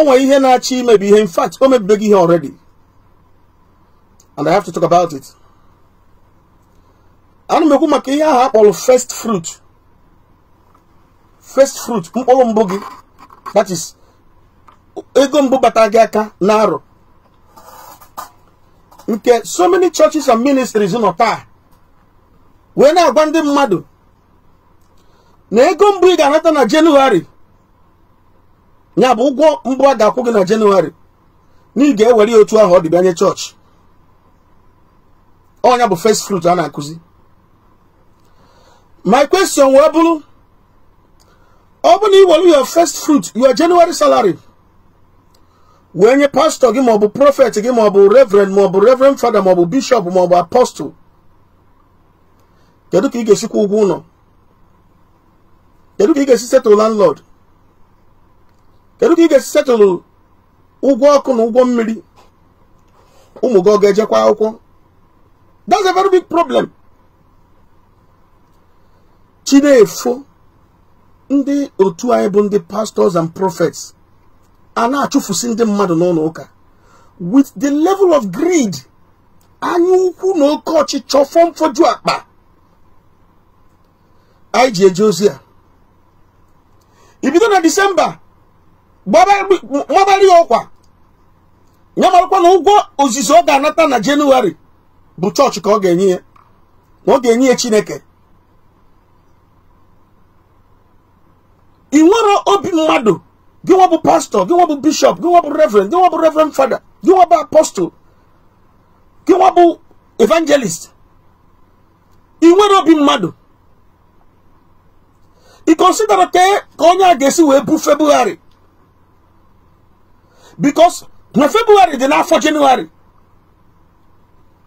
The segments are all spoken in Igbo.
onwe ihe na-achọ imebi ihe in fact o mebibeghị ihe already and i have to talk about it ana m ekwu maka ihe ahụ akpọrọ first fruit first fruit mkpụrụ mbụ gị that is ego mbụ bata gị aka na arọ nke so many churches and ministries nọ taa wee na-agwa ndị mmadụ na ego mbụ ị ga-anata na jenụwarị ya bụ ụgwọ mbụ a ga gị na jenụwarị na ị ga-ewere ya otu ahụ ọ dịbịanye chọọchị ọnya bụ first fruit a na-akụzi my question wee bụrụ ọ bụ na ị were your first fruit your January salary wee nye pastọ gị maọbụ prophet gị maọbụ reverend maọbụ revrend fada maọbụ bishop maọbụ apostol kedu ka ị ga-esikwa ụgwọ ụlọ kedu ka ị ga-esi settle landlord kedu ka ị ga-esi setụlụ ụgwọ ọkụ na ụgwọ mmiri ụmụ gị ọ ga-ejekwa akwụkwọ that's a very big problem chinefo ndị otu anyị bụ ndị pastors and prophets a na-achụfusi ndị mmadụ n'ụlọ ụka with the level of greed anya ukwu na oke ọchịchọ fọmfoju akpa anyị ji eje ozi a ibido na disemba gbabara ya ọkwa ya marakwa na ụgwọ ozizi ọ ga-anata na jenụwarị bụ chọọchị ka ọ ga-enye ya na ọ ga-enye ya chineke ị nwere obi mmadụ gị nwa bụ pastọ gị nwa bụ bishọp gị nwa bụ reverend gị nwa bụ reverend fada gị nwa bụ apostol gị nwa bụ evangelist ị nwere obi mmadụ ị kọnsidara e, ka onye a ga-esi wee bufebugharị because na february dị n'afọ jenụwarị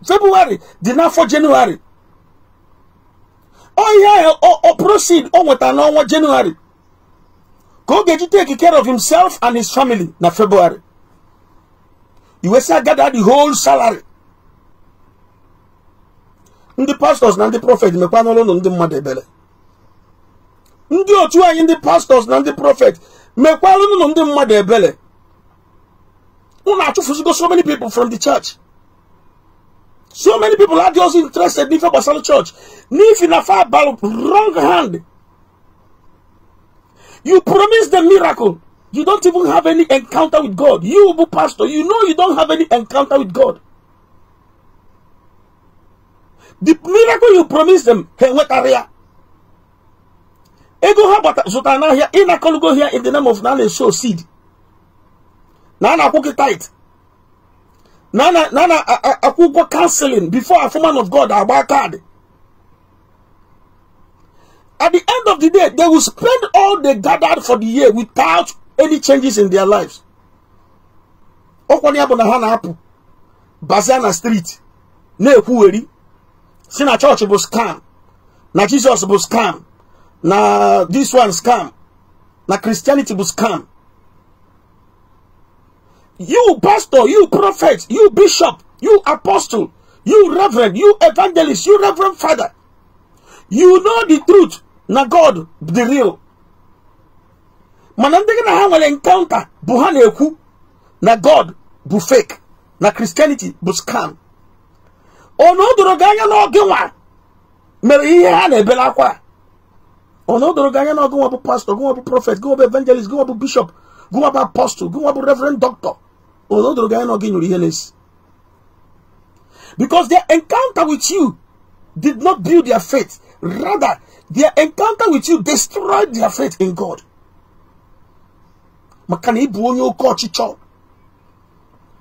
february dị n'afọ jenụwarị ọhịa ọ proceed o nweta n'ọnwa jenụwarị ka ọ ga-eji take care of himself and his family na february iwesịa gather the whole salary ndị pastors na ndị prophet mekwa n'ọrụ ndị mmadụ ebele ndị otu anyị ndị pastors na ndị prophet mekwa ụlọ ndị mmadụ ebele. Unachufusigo so many people from the church. So many people are just interested in Basalo Church. If in a far wrong hand, you promise the miracle. You don't even have any encounter with God. You, pastor, you know you don't have any encounter with God. The miracle you promise them, Ego ha zụtara n'ahịa ị na-akọlugo here in the name of na show seed na na-akwụ tight tait na a na-akwụ ụgwọ kanselin of god agba kaadị at the end of the day they will spend all they gathered for the year without any changes in their lives ọkwanye bụ na ha na-apụ bazia na street na-ekwugheri si na chọọchị bụ scam na jesus bụ scam na this one scam na christianity bụ scam You pastor, you prophet, you bishop, you apostle, you reverend, you evangelist, you reverend father. You know the truth. na God, the real. mana ndị na ha nwere encounter bụ ha na-ekwu na god bụ fake na christianity bụ scam ọnụ doro gị anya n'oge nwa mere ihe ha na-ebere akwa ọnụ doro gị anya n'oge nwa bụ pastor gị nwa bụ prophet gị nwa bụ evangelist gị nwa bụ bishop gị nwa bụ apostle gị nwa bụ reverend doctor because their encounter with you did not build their faith rather their encounter with you destroyed their faith in god maka na ịbụ onye oke ọchịchọ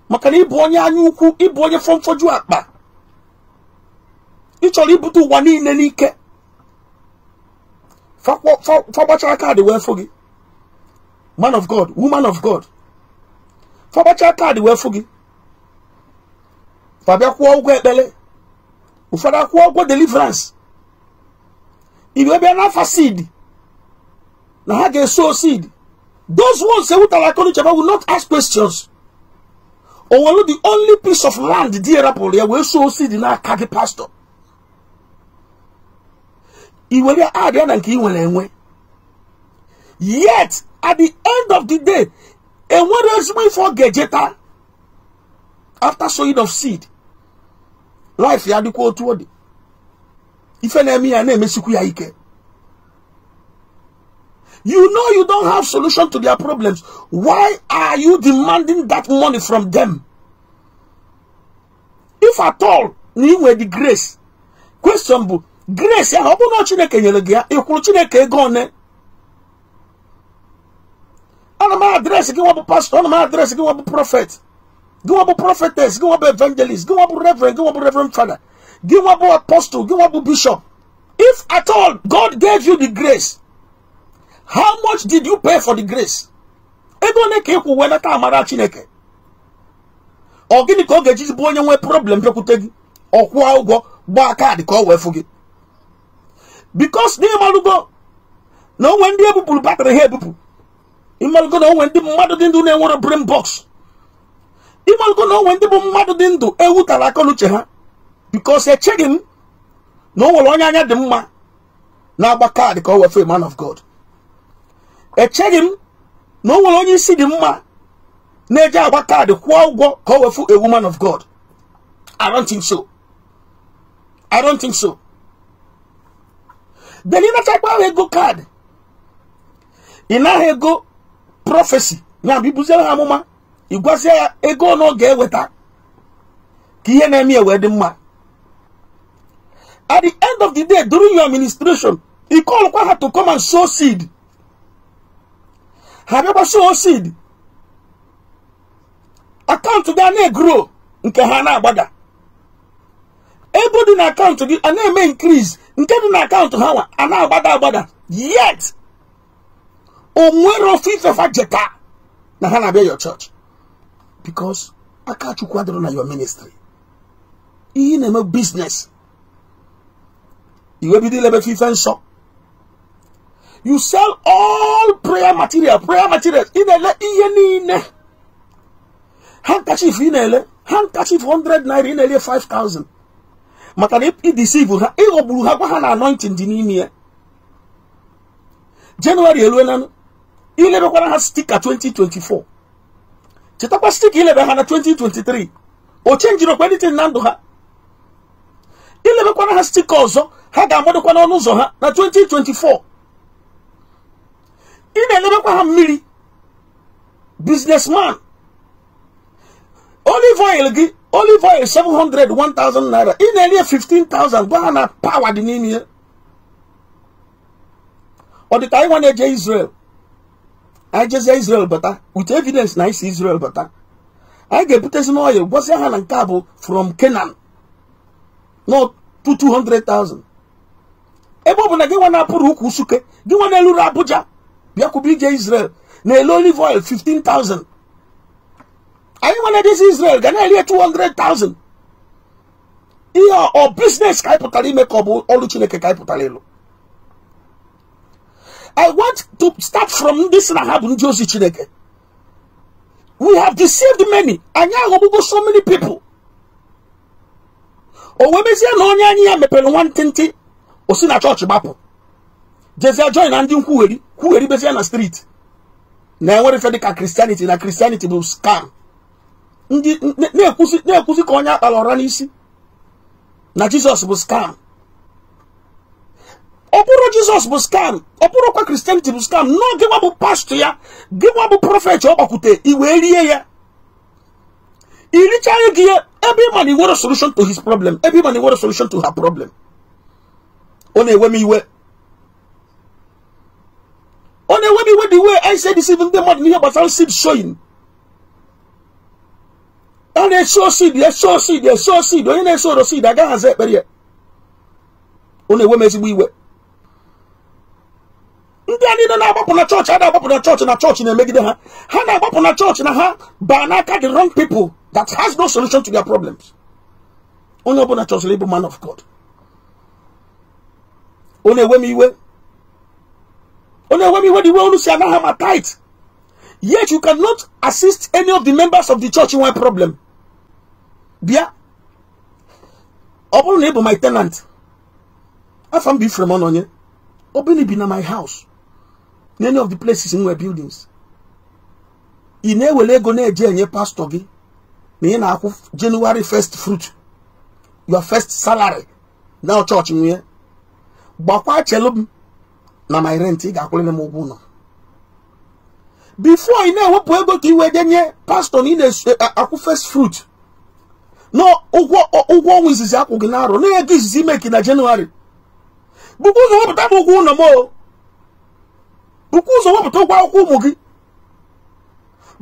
maka man of god woman of god fabachaa kaadị wee fụ gị fabịa kwụọ ụgwọ ekpere ụfọdụ akwụọ ụgwọ deliverance ibe bịa n'afa seed na ha ga-eso seed those ones ewutara aka n'uche will not ask questions nwere the only piece of land di erapụrụ ya wee so seed n'aka gị pastor iwere adịa na nke ị nwere enwe yet at the end of the day enwere ezigbo ife ọ ga after sowing of seed life ya dịkwa otu ọ dị ife na emi ya na-emesikwu ya ike you know you don't have solution to their problems why are you demanding that money from them if at all na ị the grace question grace ya ọ bụ na chineke nyere gị ịkwụrụ chineke ego one na m adreesị gị nwa bụ pastọ na m adreesị gị prọfet gị gị evangelist gị reverend gị nwa gị apostle gị bishop if at all god gave you the grace how much did you pay for the grace ego ole ka ịkwụ wee nata amara chineke ọ gịnị ka ọ ga-eji bụ onye nwee problem bịakwute gị ọ kwụọ ụgwọ gbaa kaadị ka ọ wee fụ gị bikos n'ịmalụgo na onwe ndị ebupụrụ batrị ha ebupụ ịmalụgo na onwe ndị mmadụ dị ndụ na-enwere brain box ịmalụgo na onwe ndị bụ mmadụ dị ndụ ewutala tara n'uche ha bikos echeghị m na o onye anya dị mma na-agba kaadị ka o wefe man of God echeghị m na o onye isi dị mma na eje agba kaadị kwụọ ụgwọ ka o wefu ewu man of God I don't think so I don't think so then ịnachakwa ahụ ego kaadị ị naghị ego prọfesi na bibuzie ha amụma ịgwazie ya ego ọ ga-eweta ka ihe na-eme wee dị mma at the end of the day during your administration call kwa ha to come and sow seed ha bịakwa sow seed akaụntụ gị a na-egro nke ha na-agbada ego dị na akaụntụ gị a na-eme increase nke dị na akaụntụ ha nwa a na-agbada agbada yet onwere ofufe fa jeta na ha na-abịa your church because Akachukwu adịrọ na your ministry ihe na-eme biznes iwebido ilebe ife nsọ you sell all prayer material prayer materials ị na-ele ihe niile handkerchief ị na-ele handkerchief 100 naira ị na-ele 5000 maka na idisivu ha ịghọgburu ha gwa ha na anointing dị n'ime ya jenụwarị ilebekwara ha stika 2024 chetakwa stika ilebe ha na 2023 o chenjiri okwa na ndụ ha ilebekwana ha stika ọzọ ha ga-agbadokwa n'ọnụ ụzọ ha na 2024 ị na-elebekwa ha mmiri businessman olive oil gị olive oil 700 1000 naira ị na-eri 15000 gwa ha na pawa dị n'ime ya ọ dị anyị nwa e na-eje Israel anyị Israel bata with evidence na anyị si Israel bata anyị ga-ebutezi n'ọya gwasịa ha na nke a bụ from Kenan nọ 200,000 ebe ọ bụ na gị nwa na-apụrụ ukwu Usuke gị nwa eluru Abuja bịakwube ije Israel na-ele olive oil 15,000 anyị nwa na Israel ga na-eri 200,000 ihe ọ biznes ka anyị pụtara ime ka ọ bụ ọrụ Chineke ka anyị pụtara ịlụ I want to start from this Rahab ozi Chineke. We have deceived many. anya aghọgbugo so many people. O na onye anyị ya mepere nwantịntị o si na chọọchị gbapụ. Jezie join na ndị nkwugheri kwugheri bezie na street. Na enwere ife dịka Christianity na Christianity bụ scam. Ndị na-ekwusi ka onye akpara ọra n'isi na jesus bụ scam. Jesus bụ skam ọ bụrụkwa kristianity bụ skam nọọ gịnwa bụ pastọ ya gịnwa bụ prọfet ọ gbakwute i ya irichaghị gị ya ebe ịma na solution to his problem Every man na solution to her problem ọ na-ewe m iwe ọ na-ewe m iwe dị iwe anyị si edisive ndị mmadụ n'ihe gbasara seed sowing ọ na-eso seed show seed show seed onye na-eso oro seed agaghị aza ekpere ya ọ na-ewe m we iwe ndị a niile na-agbapụ na chọọchị a na-agbapụ na chọọchị na chọọchị na-emegide ha ha na-agbapụ na chọọchị na ha baa n'aka the wrong people that has no solution to their problems onye ọbụla chọsịrị ịbụ man of God ọ na-ewe m iwe ọ na-ewe m iwe dị iwe unu si anaghị ama tight yet you cannot assist any of the members of the church nwee problem bịa ọ bụrụ na ị bụ my tenant afọ m bụ ifrem ọnụ onye ọ bụrụ na ibi na my house many of the places nwere buildings ị na-ewere ego na-eje enye pastọ gị na ị na-akwụ January first fruit your first salary na ọchọọchị nwunye gbakwa chelu m na my rent ị ga-akwụrịrị m ụgwọ ụlọ bifo ị na-ewepụ ego ka ị wee denye pastọ na ị na-akwụ first fruit na ụgwọ ọnwa izizi akwụ gị na arọ na ego izizi imeki na January bụkwa na wepụta m ụgwọ ụlọ m o bụkwa ụzọ wepụta ụgwọ akwụkwọ ụmụ gị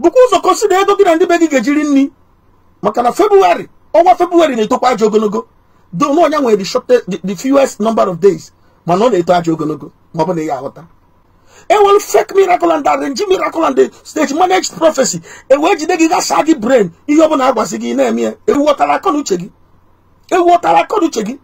bụkwa ụzọ kọsida ego gị na ndị be gị ga-ejiri nri maka na febụwarị ọnwa febụwarị na-etokwa ajọ ogologo donu onye nwere the fewest number of days mana ọ na-eto ajọ ogologo ma ọ bụ na ya aghọta nwere fake miracle and arrange miracle and stage managed prophecy ewee jide gị gasa gị brain ihe ọbụla agwazi gị na-eme ya ewuọtara akọ gị ewuọtara akọ uche gị